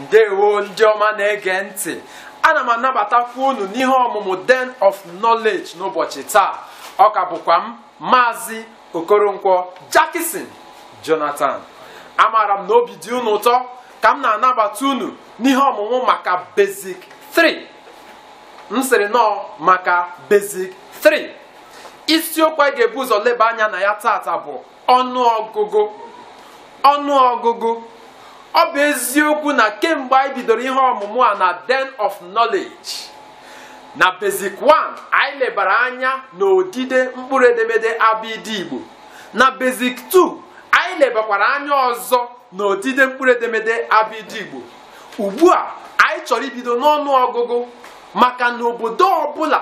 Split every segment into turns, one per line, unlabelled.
ndewo ndị ọma na-ege ntị ana m anabatakwa unu n'ihe ọmụmụ den of knowledge n'ụbọchị taa ọ bụkwa m maazị okoronkwo jackson jonathan amaara m na obi dị unu ụtọ ka m na-anabata unu n'ihe ọmụmụ maka basic 3 m sịrị maka basic 3 isiokwu anyị ga-ebu ụzọ leba anya na ya taata bụ ọnụọgụgụ ọnụọgụgụ ọ bụ eziokwu na kemgbe anyị bidoro ihe ọmụmụ a na den of knowledge na basic 1 anyị lebara anya n'odide mkpụrụ edemede abịdị igbo na basic 2 anyị lebakwara anya ọzọ n'odide mkpụrụ edemede abịdị igbo ugbu a anyị chọrọ ibido n'ọnụ ọgụgụ maka na obodo ọbụla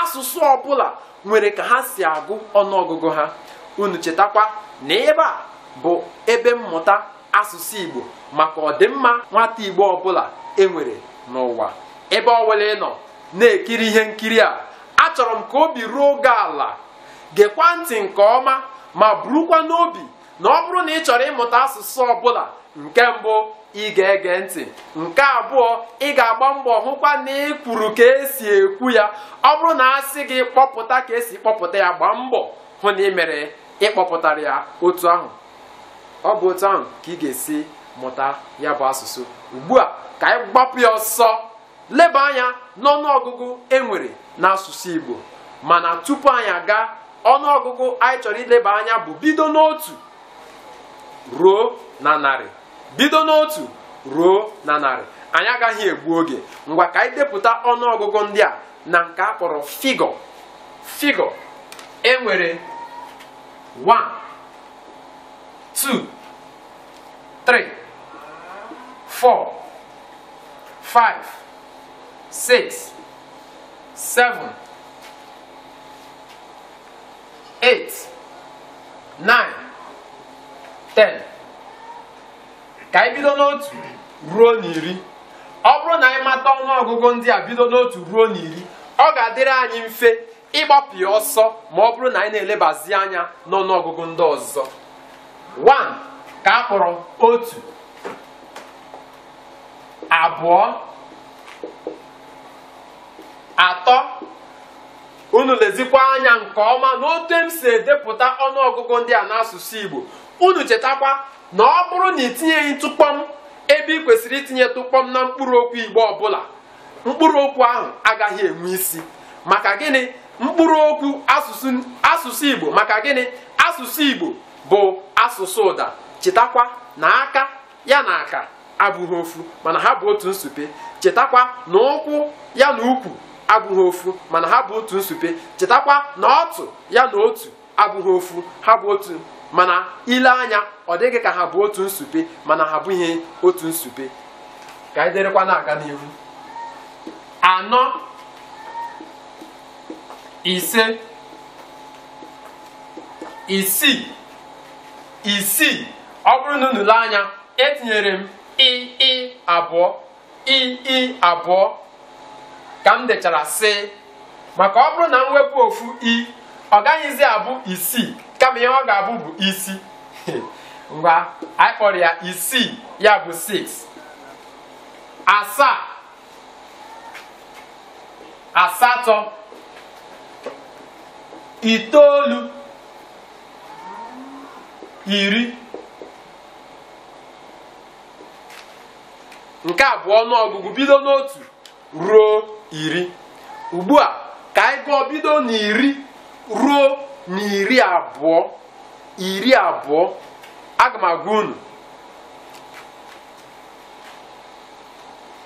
asụsụ ọbụla nwere ka ha si agụ ọgụgụ ha unu chetakwa na ebe a bụ ebe mmụta asụsụ Igbo maka ọdịmma nwata Igbo ọbụla enwere n'ụwa ebe ọ bụla ịnọ na-ekiri ihe nkiri a achọrọ m ka obi ruo gị ala gekwa ntị nke ọma ma burukwa n'obi na ọ bụrụ na ị chọrọ ịmụta asụsụ ọbụla nke mbụ ị ga-ege ntị nke abụọ ị ga-agba mbọ hụkwa na ị e kwuru ka esi ekwu ya ọ bụrụ na a sị gị kpọpụta ka esi kpọpụta ya gbaa mbọ hụ na ị mere ịkpọpụtara ya otu ahụ ọ bụ otu ahụ ka ị ga-esi mụta ya bụ asụsụ ugbu a ka anyị gbapụ ya ọsọ leba anya n'ọnụọgụgụ e nwere n'asụsụ Igbo mana tupu anyị aga ọnụọgụgụ anyị chọrọ ileba anya bụ bido n'otu ruo na narị bido n'otu ruo na narị anyị agaghị egbu oge ngwa ka anyị depụta ọnụọgụgụ ndị a na nke a kpọrọ figọ figọ enwere 1 2 three, four, five, six, seven, eight, nine, ten. ka anyị n'otu ruo n'iri ọ bụrụ na anyị mata ọnụọgụgụ ndị a bido n'otu ruo n'iri ọ ga-adịrị anyị mfe ịgbapụ ọsọ ma ọ bụrụ na anyị na-elebazi anya n'ọnụọgụgụ ndị ọzọ 1 ka a kpọrọ otu abụọ atọ unu lezikwa anya nke ọma na n'otu m si edepụta ọnụọgụgụ ndị a n'asụsụ Igbo unu chetakwa na ọ bụrụ na itinyeghị tụkpọm ebe ị kwesịrị itinye tụkpọm na mkpụrụ okwu Igbo ọbụla mkpụrụ okwu ahụ agaghị enwe isi maka gịnị mkpụrụ okwu asụsụ Igbo maka gịnị asụsụ Igbo bụ asụsụ ụda chetakwa na aka ya na aka abụghị ofu mana ha bụ otu nsupe chetakwa na ụkwụ ya na ukwu abụghị ofu mana ha bụ otu nsupe chetakwa na ọtụ ya na otu abụghị ofu ha bụ otu mana ile anya ọ dịghị ka ha bụ otu nsupe mana ha abụghị otu nsupe ka anyị n'aka na-aga n'ihu anọ ise isii isii ọ bụrụ na unu lee anya etinyere m ii abụọ ii abụọ ka m dechara sị maka ọ bụrụ na m wepụ ofu i ọ gaghịzi abụ isii kama ihe ọ ga-abụ bụ isi ngwa anyị kpọrọ ya isii ya bụ 6 asaa asatọ itoolu iri nke abụọ ọnụọgụgụ bido n'otu ruo iri ugbu a ka anyị gụọ bido n'iri ruo n'iri abụọ iri abụọ aga m agwa unu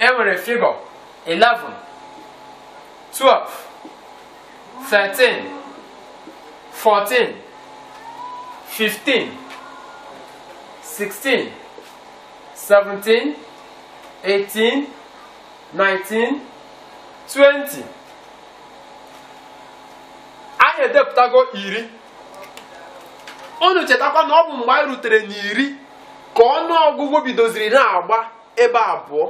enwere figọ 11 12 13 14 15 16 17 18 19 20 anyị edepụtago iri unu chetakwa na ọ bụ mgbe anyị rutere n'iri ka ọnụ ọgụgụ bidoziri na-agba ebe abụọ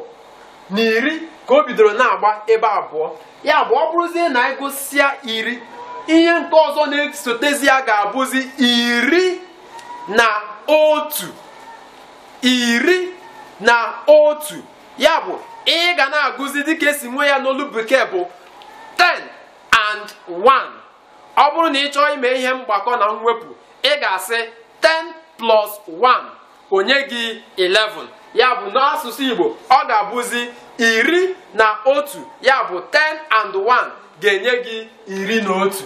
na iri ka o bidoro na-agba ebe abụọ ya bụ ọ bụrụzie na anyị gụsịa iri ihe nke ọzọ na-esotezi ya ga-abụzi iri na otu iri na otu ya bụ ị ga na-agụzi dịka esi nwee ya n'olu bekee bụ 10 and 1 ọ bụrụ na ị chọọ ime ihe mgbakọ na mwepụ ị ga-asị 10 plus 1 onye gị 11 ya bụ n'asụsụ Igbo ọ ga-abụzi iri na otu ya bụ 10 and 1 ga-enye gị iri na otu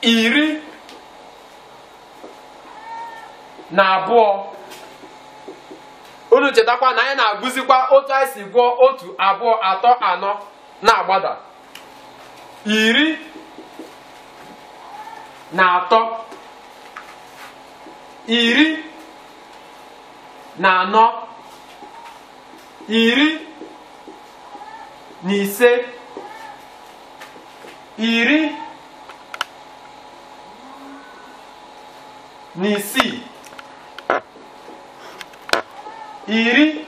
iri na abụọ unu chetakwa na anyị na-agụzikwa otu anyị si gụọ otu abụọ atọ anọ na-agbada iri na atọ iri na anọ iri na ise iri na isii iri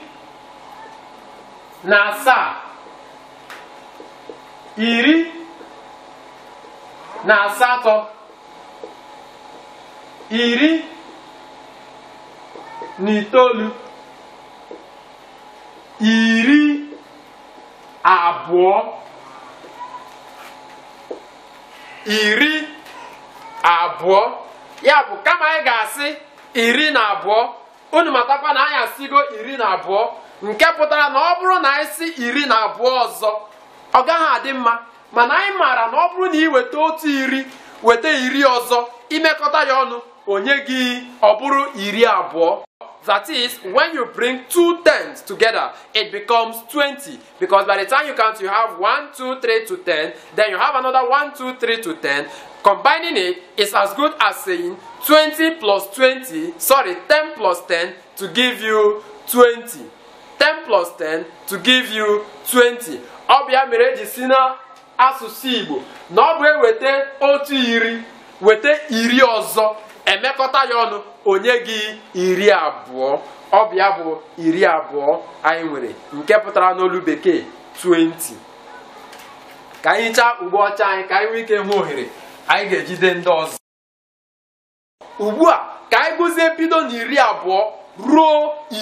na asaa iri na asatọ iri na itoolu iri abụọ iri abụọ ya bụ kama anyị ga-asị iri na abụọ unu matakwa na anyị asịgo iri na abụọ nke pụtara na ọ bụrụ na anyị si iri na abụọ ọzọ ọ gaghị adị mma mana anyị maara na ọ bụrụ na ị weta otu iri weta iri ọzọ imekọta ya ọnụ onye gị ọ bụrụ iri abụọ That is, when you bring two tens together, it becomes 20. Because by the time you count, you have 1, 2, 3 to 10. Then you have another 1, 2, 3 to 10. Combining it is as good as saying 20 plus 20, sorry, 10 plus 10 to give you 20. 10 plus 10 to give you 20. Ọ bịa sina eji si na asụsụ wete na ọ bụ otu iri weta iri ọzọ emekọta ya ọnụ onye gị iri abụọ ọ bụ ya bụ iri abụọ anyị nwere nke pụtara n'olu bekee 20 ka anyị chaa ugbo ọcha anyị ka anyị nwee ike hụ ohere anyị ga-ejide ndị ọzọ ugbu a ka anyị gụzie bido na iri abụọ ruo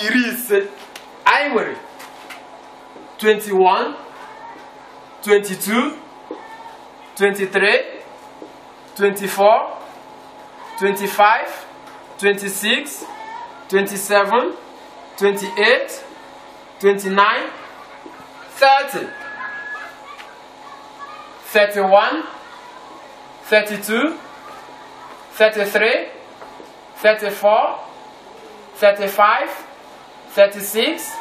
iri ise anyị nwere 21 22 23 24 25, 26, 27, 28, 29, 30, 31, 32, 33, 34, 35, 36,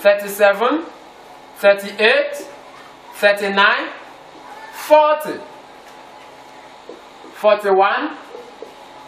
37, 38, 39, 40, 41,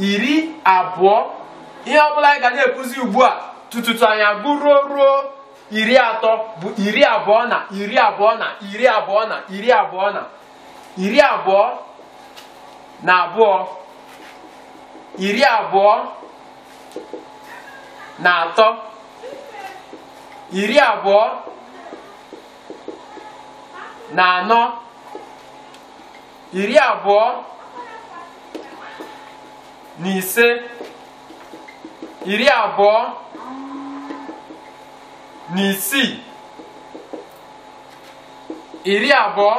iri abụọ ihe ọbụla anyị ga na-ekwuzi ugbu a tututu anya buruo ruo iri atọ bụ iri abụọ na iri abụọ na iri abụọ na iri abụọ na iri abụọ na abụọ iri abụọ na atọ iri abụọ na anọ iri abụọ na ise iri abụọ na isii iri abụọ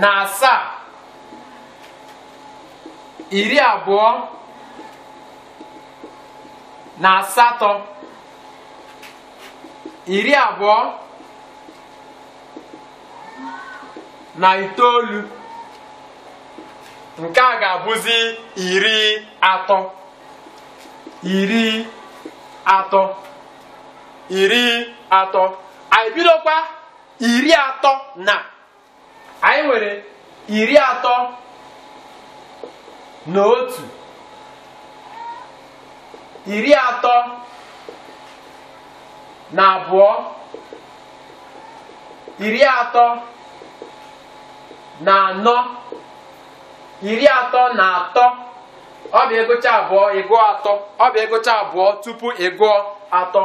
na asaa iri abụọ na asatọ iri abụọ na itoolu nke a ga abuzi iri atọ iri atọ iri atọ anyị bidokwa iri atọ na anyị nwere iri atọ na otu iri atọ na abụọ iri atọ na anọ iri atọ na atọ ọ bụ ịgụcha abụọ ịgụọ atọ ọ bụ ịgụcha abụọ tupu ịgụọ atọ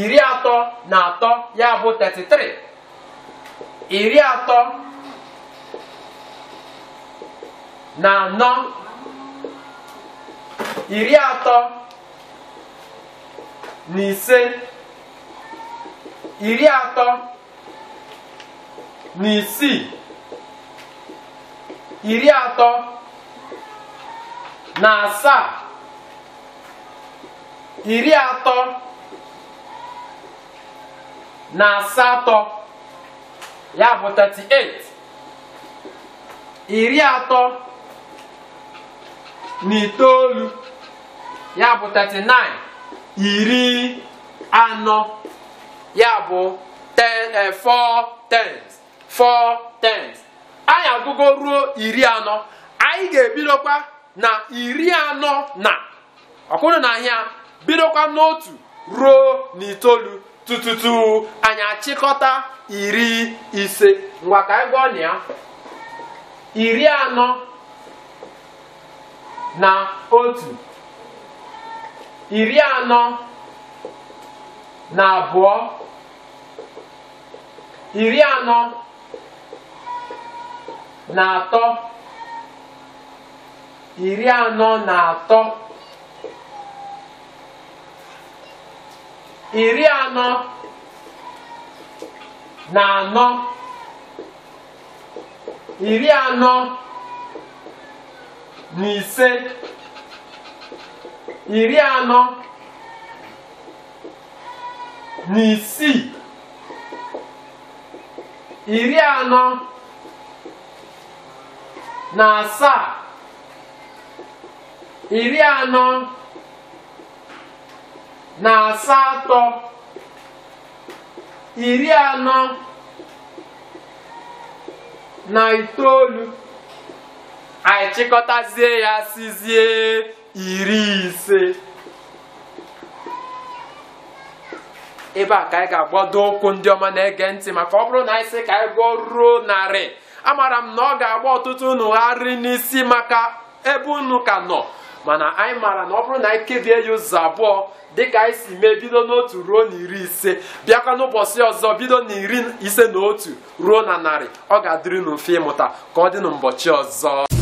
iri atọ na atọ ya bụ 33 iri atọ na anọ iri atọ na ise iri atọ na isii iri atọ na asaa iri atọ na asatọ ya bụ 38 iri atọ na itoolu ya bụ 39 iri anọ ya bụ 4 times 4 anyị agụgo ruo iri anọ anyị ga-ebidokwa na iri anọ na ọkụnụ na ahịa bidokwa n'otu ruo n'itoolu tututu anyị achịkọta iri ise ngwa ka anyị gwa na ya iri anọ na otu iri anọ na abụọ iri anọ na atọ iri anọ na atọ iri anọ na anọ iri anọ na ise iri anọ na isii iri anọ na asaa iri anọ na asatọ iri anọ na itoolu anyị chịkọtazie ya sizie iri ise ebe a ka anyị ga-agbado ụkwụ ndị ọma na-ege ntị maka ọ bụrụ na anyị sị ka anyị gụọ ruo narị amara m na ọ ga-agba ọtụtụ unu gharị n'isi maka ebe unu ka nọ mana anyị maara na ọ bụrụ na anyị kebie ya ụzọ abụọ dịka anyị si mee bido n'otu ruo na iri ise bịakwa n'ụbọchị ọzọ bido na iri ise na otu ruo na narị ọ ga-adịrị n'ofe ịmụta ka ọ dị n'ụbọchị ọzọ